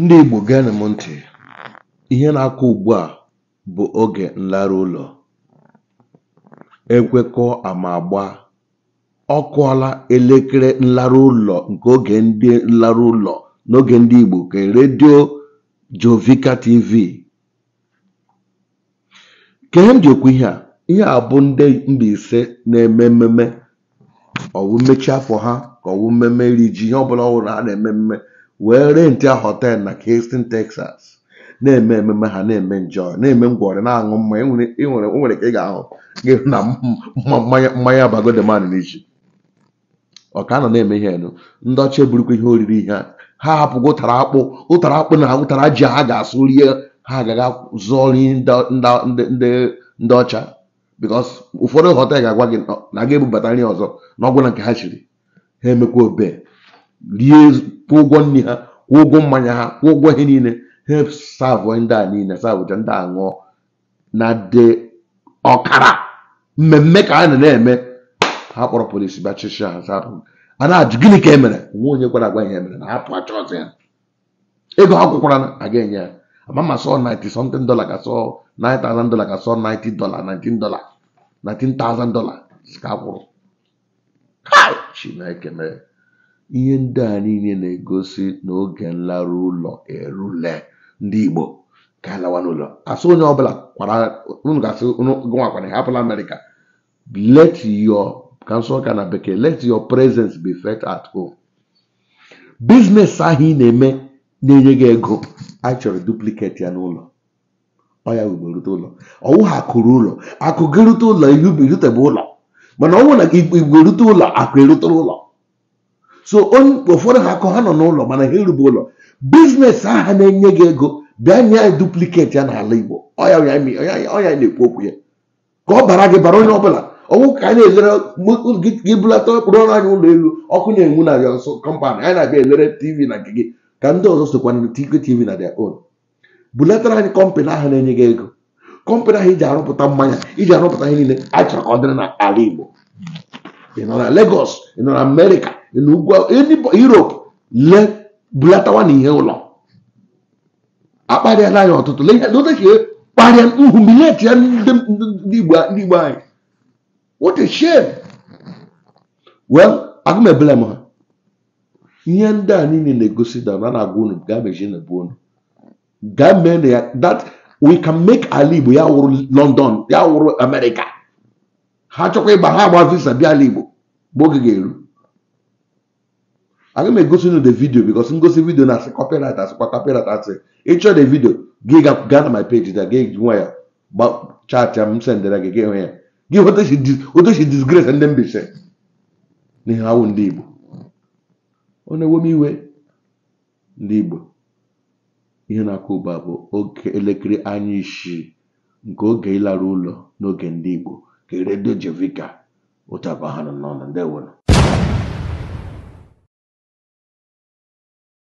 Ndị Igbo na m ntị, ihe na-akụ ugbu a bụ oge nlara ụlọ. ekwekọ amagba ama agba. Ọ kụọla elekere nlara ụlọ nke oge ndị nlara ụlọ n'oge ndị Igbo ke redio Jovika TV. Ke ihe m ji okwu ihe a, ihe a bụ ndị Mbaise na-eme mmemme. Ọ mmechi afọ ha ka ọ wụ mmemme iri ji ihe ọbụla ọ wụrụ ha na-eme mmemme wee a họtelụ na Houston Texas na-eme ememe ha na-eme njọ na-eme ngwọrị na-aṅụ mmanya e e nwere ka ị ga-ahụ na mmanya bago de n'iji ọka nọ na-eme ihe enu ndị ọcha eburukwa ihe oriri ihe a ha hapụgo ụtara akpụ ụtara akpụ na ụtara ji ha ga-asụ rie ha agaghị zụọ ndị ọcha bikos ụfọdụ họtel ga-agwa gị na ga-ebubata nri ọzọ na ọgwụ na nke ha chiri ha emekwa obe rie kwụ ụgwọ nri ha kwụ ụgwọ mmanya ha kwụ ụgwọ ihe niile ha ndị a niile savụcha ndị a ṅụọ na de ọkara mmemme ka a na-eme ha kpọrọ polisi ha sapụ a na-ajụ gịnị ka emere mere nwa onye kwara agwa ihe e mere na achọ ya ego ha kwụkwara aga enye ya ama ma sọ 90 something dollar ka sọ 9000 dollar ka sọ 90 dollar 19 dollar 19000 dollar ka chi Ihe ndị a niile na-egosi na oge nlarụ ụlọ erule ndị Igbo ka anyị n'ụlọ asị onye ọbụla unu ga-asị gụnwa kwara hapụla Amerịka let your ka nsọ ụka na bekee let your presence be felt at home biznes ahụ ị na-eme na-enye gị ego anyị chọrọ duplicate ya n'ụlọ ọ ya wube rute ụlọ ọwụ ha akụrụ ụlọ akụ gị rute ụlọ ihu irutebe ụlọ mana ọ nwụ na igbo erute ụlọ akụ erute ụlọ so ụfọdụ ha akọ ha nọ n'ụlọ mana ha erube ụlọ biznes aha na-enye gị ego bịa nye anyị dupliketi ya n'ala Igbo ọya ọya na-ekwu okwu ya ka ọ bara gị bara onye ọbụla ọnwụ ka anyị na-elere gị bulata ọkpụrụ ọrụ anyị ụlọ elu ọkụ na-enwu na ya nso kọmpanị anyị na-abịa elere tv na nke gị ka ndị ọzọ sokwa na tv na their own bulatara anyị kọmpanị ahụ na-enye gị ego kọmpanị ahụ iji arụpụta mmanya iji arụpụta ihe niile achọrọ ka ọ dịrị n'ala Igbo ị nọ na legos ị nọ na Amerịka na ugwu Europe le bulatawa na ihe ụlọ akparịala ya ọtụtụ le ihe e kparịa humiliate ya ndị igbo anyị what a shame well ebele m ha ihe ndị a niile na-egosi na na na-agwa unu gaa mezie na ebu unu gaa mee na ya that we can make ala igbo ya wụrụ London ya wụrụ America ha chọkwa ịgba ha agba visa bịa ala igbo mgbe oge ga-eru aga m egosi unu the video because ngosi video na asị copyright asịkwa copyright asị ịchọ the video gị gaa na my page da gị nwa ya chaatịa m sendere gị gị hụ ya gị otochi disgrace ndị mbise n'ihe awụ ndị Igbo ọ na-ewe m iwe ndị Igbo ihe na-akụ ụba bụ oge elekere anya isii nke oge ịlara ụlọ n'oge ndị Igbo ka redio Jevika ụtaba ha nọ n'ọnụ